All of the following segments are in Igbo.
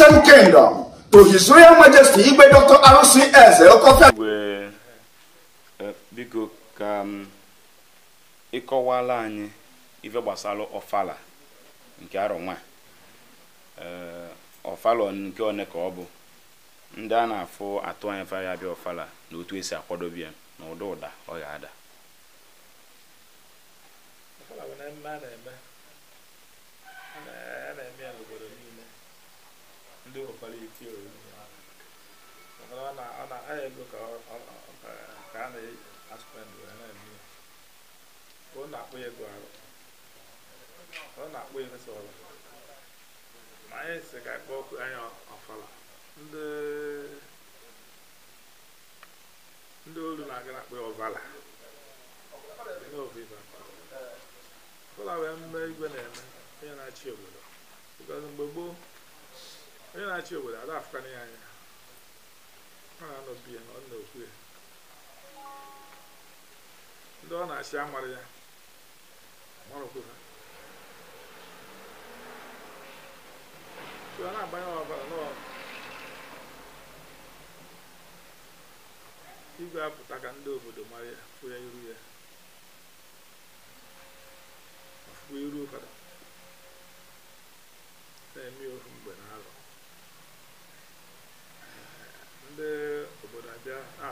Christian Kingdom to His Royal Majesty Igwe Dr. arusi Eze Okofia. Eh, biko ka mm, ịkọwala anyị ife gbasara ọfala nke arọ nwa ọfala eh, nke one ka ọ bụ ndị a na-afụ atụ anya fa ya bịa ọfala na otu esi akwadobe ya na ụda ụda ọ ga-ada ndị nwekwara ike ori mana ọ na-aha ego ka a na-aspend wee na-eme ya ka ọ na-akpọ ego arụ ọ na-akpọ ego sọrọ ma anyị si ka akpọ ọkụ anya ọfala ndị ndị olu na-aga na-akpọ ya ọvala n'oviva ọbụla wee mme igwe na-eme onye na-achị obodo because mgbe gboo onye na-achị obodo ada afụkwana ya anya ọ na-anọbi ya na ọ na-okwu ya ndị ọ na-achị amara ya marụkwu ha ọ na-agbanye ọbara n'ọrụ igwe apụta ka ndị obodo mara ya fụ iru ya fụ iru ụfọdụ na-eme ofu mgbe na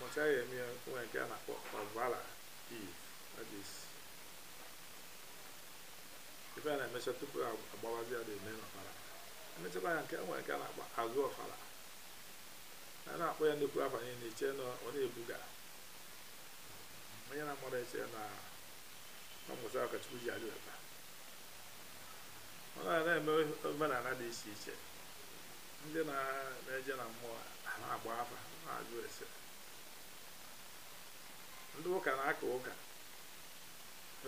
mụchaa ya eme ya nke a na-akpọ dị iv ife a na-emecha tupu agbawazi ya dị eme n'ọfala emechakwa ya nke nwa a na-akpọ azụ ọfala a na-akpọ ya nnukwu afa na iche na ọ na-ebuga na-amara eche na mmụta ọkachukwu ji alụlata ọ na-eme omenala dị iche ndị na-eje na mmụọ na-agba afa na-ajụ ese ndị ụka na-aka ụka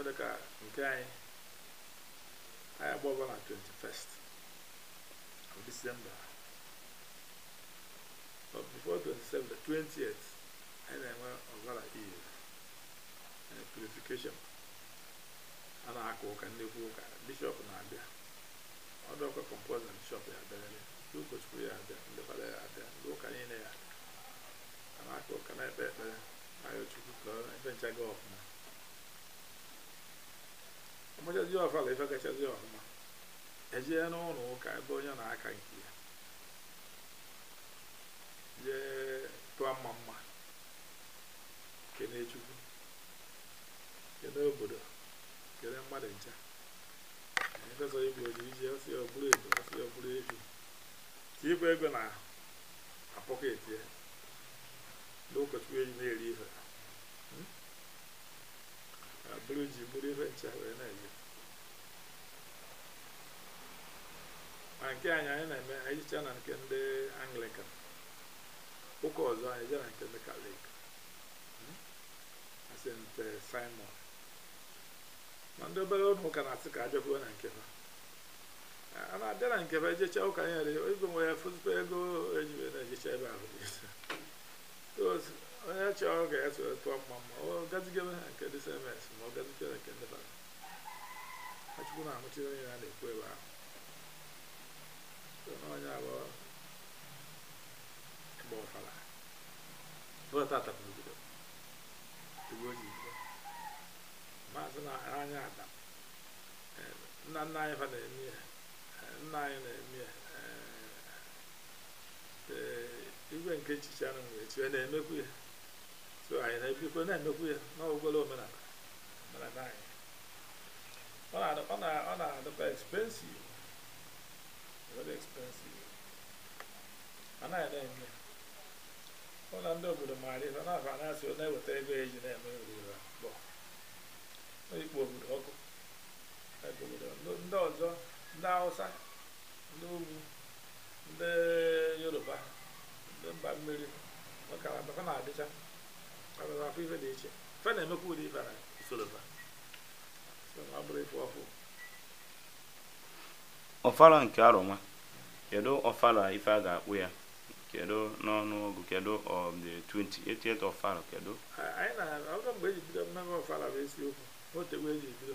dịka nke anyị anyị gba na 21st of December but before 27 20th anyị na-enwe ọbara ihe purification a na-aka ụka ndị ụka bishọp na-abịa ọdụkwa kọmpoza bishọp ya abịa ndị ụkọchukwu ya abịa ndị fada ya abịa nchaga ọfụma ọmachazi ọfụma ife gachazi ọfụma ejee n'ụlọ ụka ebe onye na-aka nke ya jee tụọ mma mma kene chukwu kene obodo kene mmadụ ncha efesọ igbo ji iji ọsị ọbụrụ ebu ọsị ọbụrụ efi tikwa ego na apọket ya n'ụkọchukwu eji na-eri ife abụrụ ji bụrụ ife ncha wee na-eje ma nke anyị anyị na-eme anyị na nke ndị anglican ụka ọzọ anyị jee na nke ndị kalik hmm? st simon ma ndị obere ụlọ ụka na-asị ka ajọbuo na nke ha a na-abịa na nke ebe jecha ụka anyị nwere nwe ya e fụzụta ego eji na-ejecha ebe ahụ onye chọrọ ọ ga-eso tụọ mma mma ọ gazigebe ha nke ndị sms ma ọ nke ndị bara achukwu na-amụchiri onye ya na-ekwu ebe ahụ onye abụọ gba ọfala bọtata n'obodo igwe oyibo maazị na anya ada eh, nna nna anyị fa na-eme ya eh, nna anyị na-eme ya eh, igwe nke echiche anụ echi na-emekwu ya 그 아이네 비고네 누구야 너 그걸로 맨날 맨날 나이 ona ona ona the expensive very expensive ana ya dai ne ona ndo bu de mari ona fa na so na wete ego eji na me ri ba bo o ipo bu de oko e bu de ndo ọzọ ndị Hausa ndị ugwu ndị Yoruba ndị mba mmiri ọ ka na-adịcha ababa afọ ife dị iche ife na-emekwa ụdị ife na usorofa ọ bụrụ ife ọfụ ọfala nke arụma kedu ọfala ife a ga-akpụ ya kedu n'ọnụọgụ kedu of the 28 ọfala kedu anyị na-ọgọ mgbe eji bido mmemme ọfala bụ isiokwu otegbu eji bido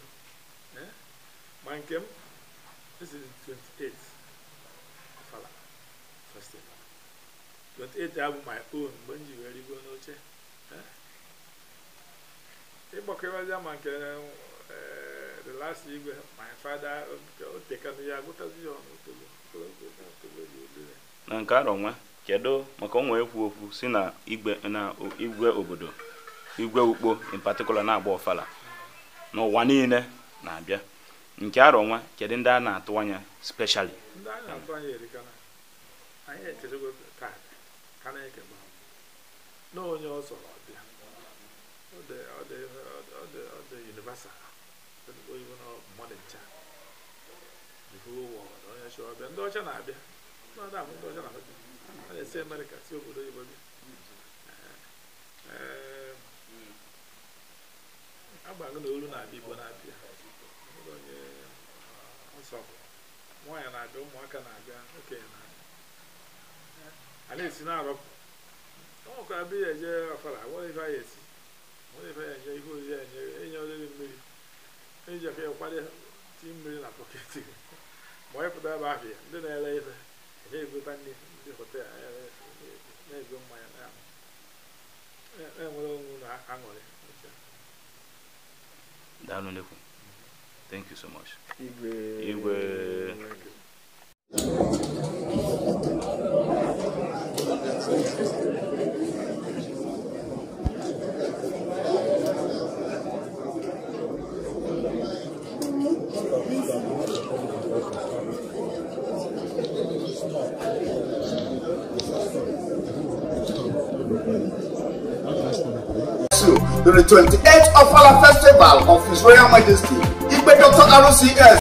ma nke m esiri 28 ọfala festival 28 abụ my own mgbe m ji wee rigo n'oche ịgbakwebezi ama nke the last igwe my father otekana ya agụtazi ya ọnụ otogbo na nke arọ nwa kedu maka onwe ekwu okwu si na igwe na igwe obodo igwe ukpo in particular na-agba ọfala ụwa niile na-abịa nke arọ nwa kedu ndị a na-atụ anya specially ndị a na-atụ anya erikana anyị echezego taa ka na-ekegba na onye ọ zọrọ bịa ọ dị universal oyibo na mmadụ ncha the whole world onye chọ ọbịa ndị ọcha na-abịa na abụ ndị ọcha na-abịa a na-esi amerịka si obodo oyibo bịa agbago na olu na-abịa igbo na-abịa onye nsọpụrụ nwaanyị na-abịa ụmụaka na-abịa okenye na-abịa a na-esi na-arọpụ ọ ka abịa ya eje afara nwere ife anyị esi nwere ife ya eje ihe oriri enye enye oriri mmiri eji efe ya kwado ti mmiri na pọket ma onye pụta ebe ahụ ya ndị na-ere ife eje egota nri ndị hotel na-ego mmanya na-enwere onwe na aṅụrị Daalụ Thank you so much. Igwe. Igwe. So, the 28th Ofala Festival of His Royal Majesty, Igbe Dr. RCS